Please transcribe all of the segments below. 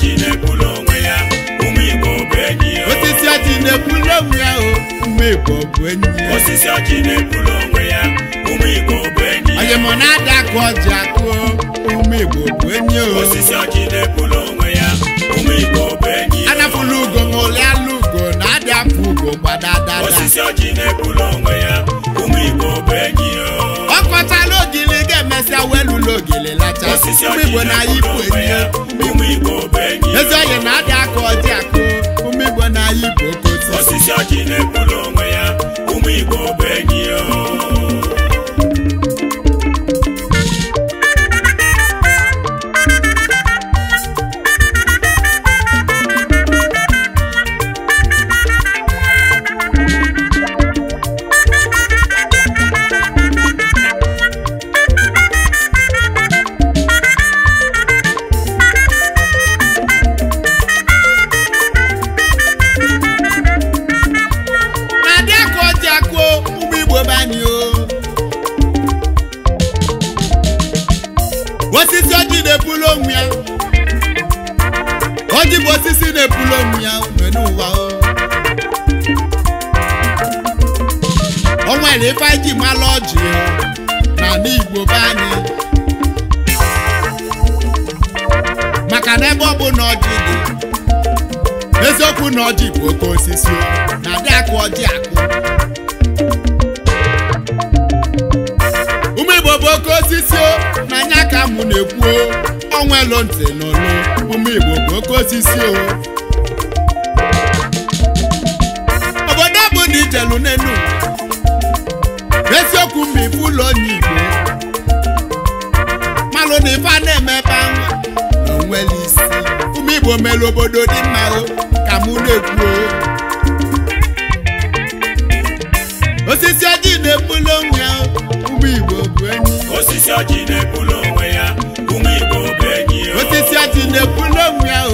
ji na-ebulu onwe ya ụmụ enyi osisi ọjị na-ebulu onwe ya ụmụ bụ enyi ya osisi na ya ụmụ enyi na-ada akụ ọjị akụ ụmụ enyi anapụla ugo ma ole alụ ugo na-adị afọ ugo osisi lacha gaa lụlụ ogele lacha ụmụ igbo na igbo enyi ezi oyi na adị aka ọjị akụ ụmụ igbo na igbo kotu na-ekwu na ọjị bụ oke osisi na adị akụ ọjị akụ ụmụ igbo bụ oke osisi na anya ka mụ na-ekwu ọnwa elu ntị n'olu ụmụ bụ oke osisi obodo bụ na ijelu n'enu n'eziokwu mgbe ife ụlọ onye igbo malụ na ife a na-eme ebe ahụ na isi igbo mere obodo dị mma ka mụ na-ekwuo osisi ọjị na-ebuli onwe ya ụmụ igbo bụ enyi osisi ọjị na-ebuli onwe ya ụmụ igbo bụ enyi osisi ọjị na-ebuli onwe ya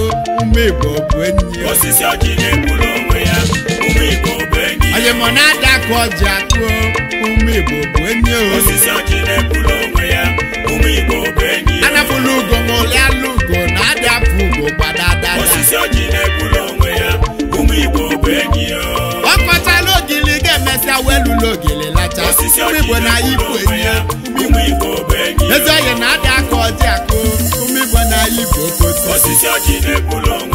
ụmụ igbo bụ enyi osisi ọjị na-ebuli onwe ya ụmụ igbo bụ enyi onye mọ na-ada ka ọjị akụọ ụmụ igbo bụ enyi osisi ọjị na-ebuli onwe ya ụmụ igbo bụ enyi anapụla ugo ma ụlị alụ ugo osisi oji na-egburu onwe ya ụmụ Igbo bụ enyi ya ọ ogili ga-emesịa wee lụrụ ogili lacha osisi Igbo na Igbo enyi ya ụmụ Igbo bụ enyi ya ezi oyi na-adị aka ọjị akụ ụmụ Igbo na Igbo kotu osisi oji na-egburu onwe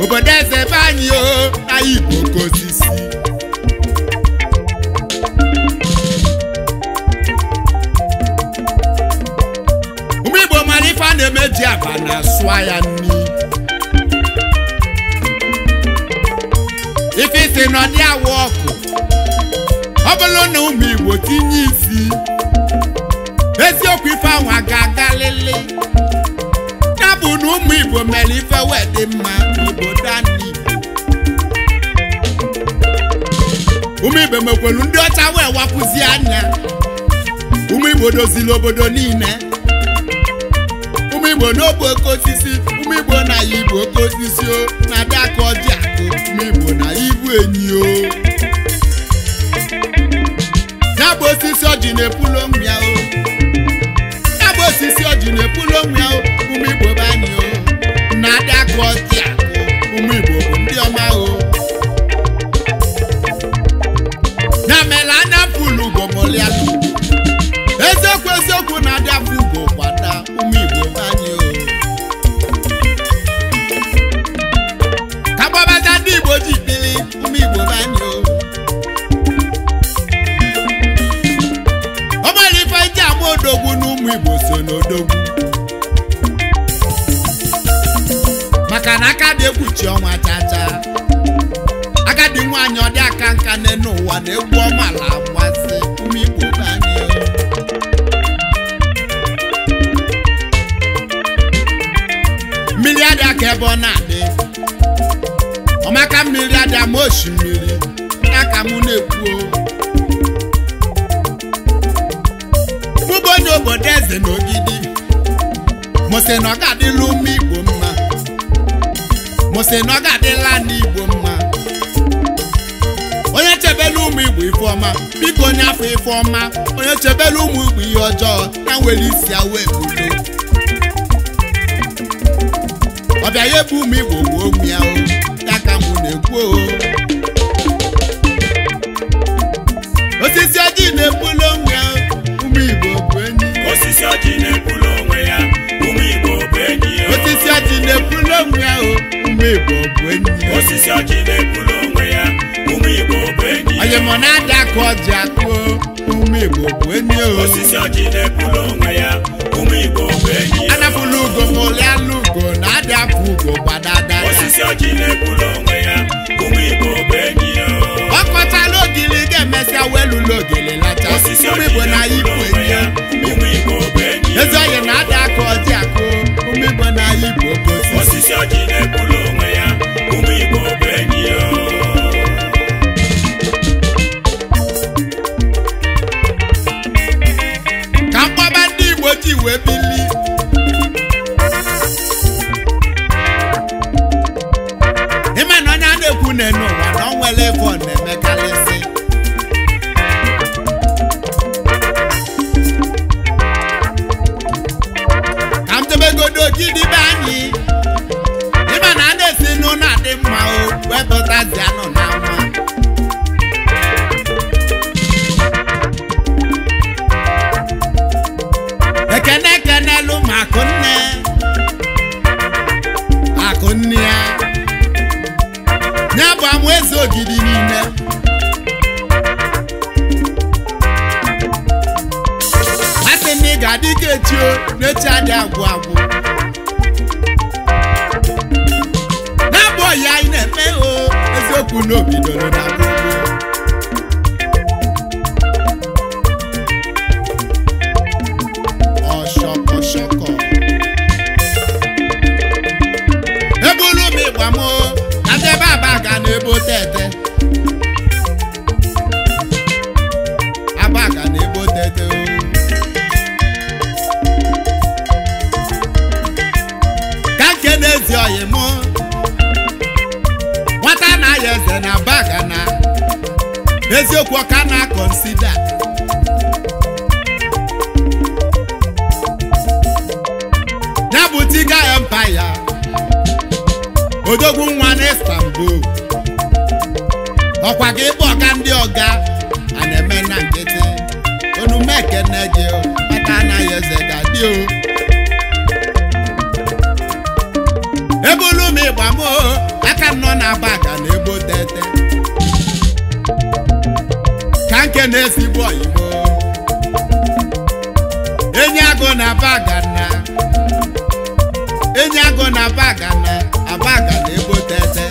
obodo eze be o na Igbo Osisi ụmụ Igbo mara ife a na-eme ji aba na sụa ya nri ife isi nọ dị awụ ọkụ ọ bụrụ na ụmụ Igbo tinye isi eziokwu ife ahụ a ga-agalịlị ya bụ na ụmụ Igbo mere ife n'obodo anyị ụmụ igbo mekwelu ndị ọcha wee anya ụmụ igbo obodo niile umeigbo igbo n'ogbe oke osisi ụmụ igbo na ya igbo oke osisi o na-abịa ka ọjị akụ ụmụ igbo na ya ibu enyi o na-epulo osisi na-epulo o o na egwu ọma na amasị ume Igbo n'anya mmiri adị aka ebe ọ na-adị ọmaka mmiri adị ama osimiri na ka mụ na-ekwu bụbụ onye obodo eze na ogidi mụsị na ọ ga-adịlụ ume Igbo mma mụsị na ọ ga-adị biko onye afọ ife ọma onye chebela ụmụ igbo ihe ọjọọ na nwere isi ya wee ọbịa ya ebe ụmụ igbo gbuo ụmụ ya ka m na-ekwu o osisi ọjị na-ebulu onwe ya ụmụ igbo bụ enyi osisi ọjị na-ebulu onwe ya ụmụ igbo bụ enyi osisi ọjị na-ebulu onwe ya ụmụ igbo bụ enyi osisi ọjị na-ebulu onwe ya olimonada ka ọji akpụ ume igbo bụ enyi osisi ọjị na-ekwuru onwe ya ume igbo bụ enyi anapụla ugo ma ugo na adị ugo gbadada osisi ọjị na-ekwuru onwe ya ume igbo bụ enyi ọ kọchala ogili ga-emesịa welụla lacha ume igbo na ya eze ogidi niile masị na ị ga-adị ka echio n'echi adị agwụ agwụ na-abụ ọya anyị na-eme o eziokwu n'obido na na-ebe abaka na-ebe ka nke na-ezi oyi nwata na-aya eze na baga na eziokwu ọka na konsida ya bụ tiga empaya odogwu nwa na istanbul ọkwa ka ịbụ ọga ndị ọga a na-eme na nkịtị onume ekene gị aka anaghị eze gadị o ebulu m ịgba m aka nọ na-aba na ebo tete ka nke na ezigbo oyibo enyi agụ na aba agana enyi agụ na aba aba na ebo tete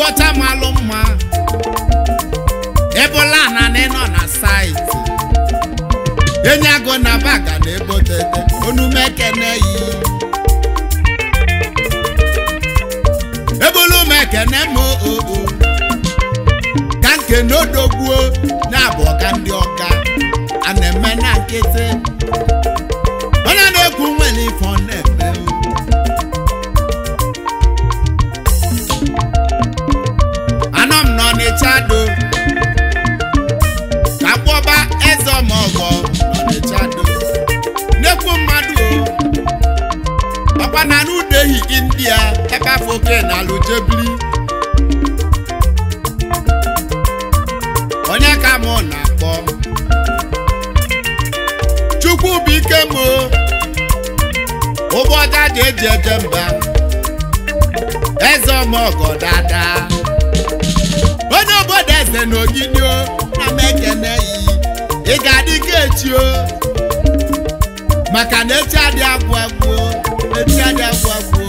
igwe ọcha malụ mma ebola na nọ na saịtị enyi agụ na baga na ebotete onume ekene yi ebola m m oo oh, oh, oh. ka nke n'odogbuo na abụ ọka ndị ọka a na-eme na nkịtị okpu ọga dị eji eje mba eze ọmọgọ dada onye obodo eze na ogidi na mekene yi ị ga-adị ka echi o maka na echi adị agwụ agwụ echi adị agwụ agwụ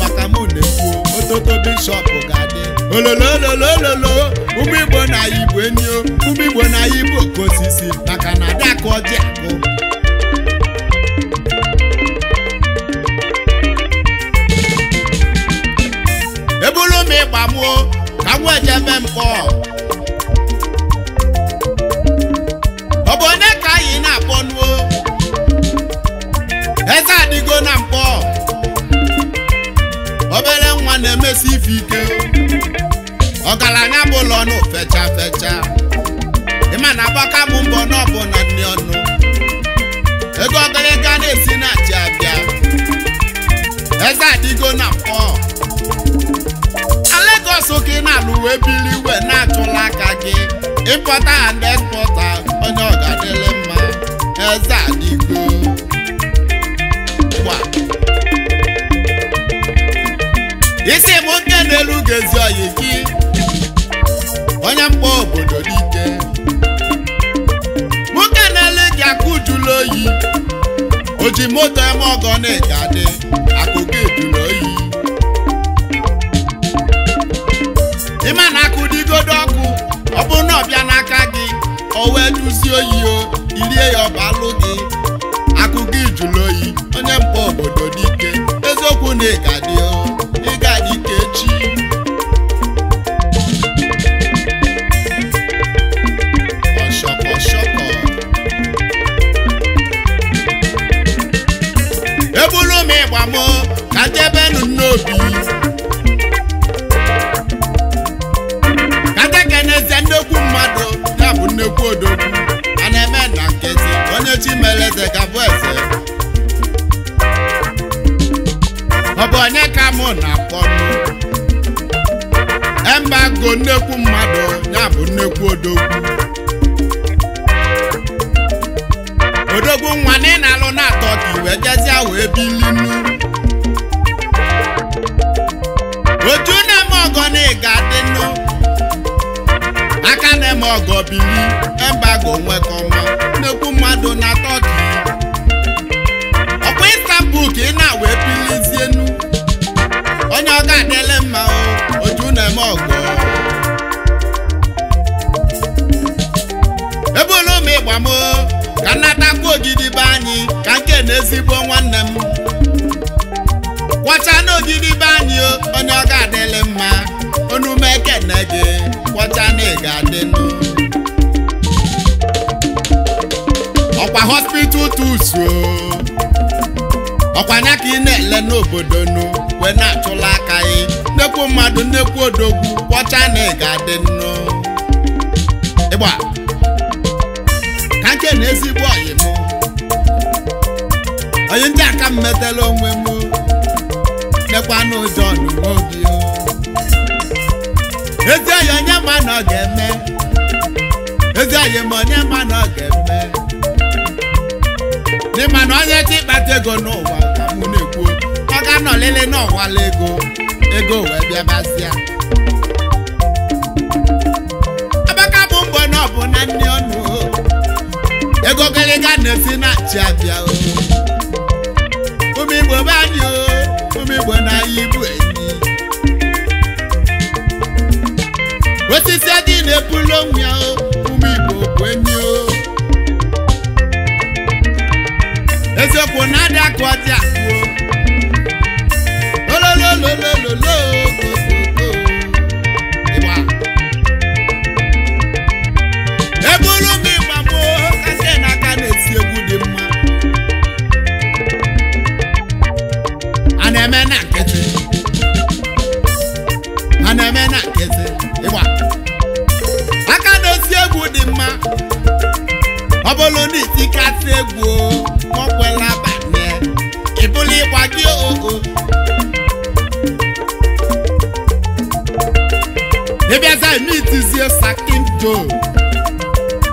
maka m na-ekwu ototo bishọp ga-adị ololo ololo ụmụ igbo na igbo enyo ụmụ igbo na igbo ka maka na adakụ ọjị akụ ndị gbamuo ka m wee jebe ọ bụ onye ka anyị na-akpọnuo eze adịgo na mpọ obere nwa na-emesi ife ike ọgaranya bụ ụlọ ọnụ fecha fecha ịma na agbaka m mbọ n'ọbụ na nne ọnụ ego ọgaraga na-esi na achị abịa eze adịgo na wee biri na-achụla aka gị ịpọta and ekpọta onye ọgadịle mma eze adịgo isi bụ nke na-elu gezi oyi gị onye mkpa obodo dike nwoke na-ele gị akụ ujula oyi o ji moto eme ọgọ na-egadị akụ na ịgadị ịgadị ka echi ọshọkọshọkọ eburu m ịgba m ka jebenụ n'obi katekeneze nnekwu mmadụ ya bụ nnekwu odogwu a na-eme na nkezi onye chi meleze gabụ mụ na akpọnụ embago nnekwu mmadụ ya bụ nnekwu odogwu odogwu nwa na ị na-alụ na-atọ ka iwe jezie wee bilinu otu na-eme ọgọ na ịga dịnụ aka na-eme ọgọ bili embago nwekọma nnekwu mmadụ ọkwa anya ka ị na-ele n'obodo nu wee na-achụla aka gị nnekwu mmadụ nnekwu odogwu kpọcha na ị ga-adị nnu ịgba ka nke na ezigbo ọyị mụ. onye ndị aka m metela onwe m nekwa n'ụjọ n'uwe obi ezi ọyị onye ma na ọ ga-eme ezi ọyị ma onye ma na ọ ga-eme n'ịma na onye ka ịkpata ego n'ụwa nọ lele na ọwala ego ego wee bịabazịa abaka bụ mgbe na ọ bụ na nne ọnụ ego gịrịga na na chi abịa anyị ụmụ ibu enyi osisi adị na-ebulu ya bụ enyi eziokwu na lololololo. ịbịaza emitizie sakin jo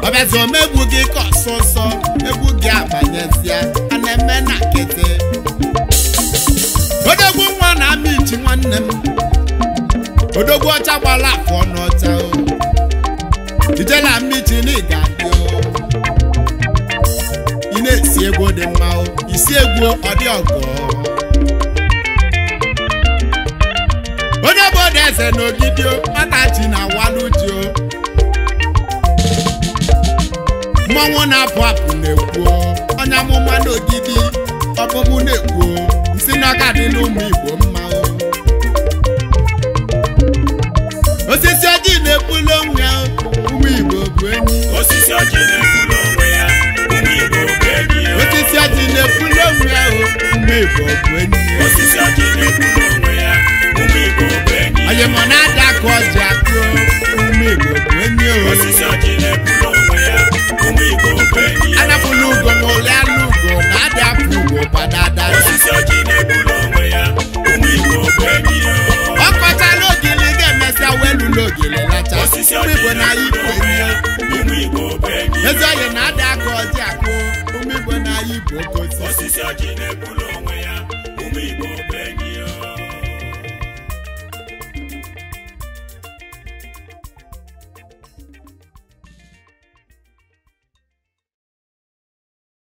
ọbịazi omegbu gị ka ọsọ nsọ egwu gị abanyezie a na-eme na kete odogwu nwa na amichi nwanne m odogwu ọcha gbara afọ n'ọcha ijela amichi na ịga dị ị na-esi egwu dị mma isi egwu ọ dị ọgọ onye bụ eze na ogidio ọdachi na waludio mmọnwụ na-apụ apụ na-ekwuo onye amụma n'ogidi na-ekwuo nsị n'ọka dị n'ụmụ Igbo mma osisi ojii na-ebuli onwe ụmụ Igbo bụ osisi ojii na-ebuli onwe ụmụ Igbo bụ enyi osisi ojii na onwe ụmụ Igbo bụ mgbe m na-adakụ ọjị akụ ume Igbo onye oyi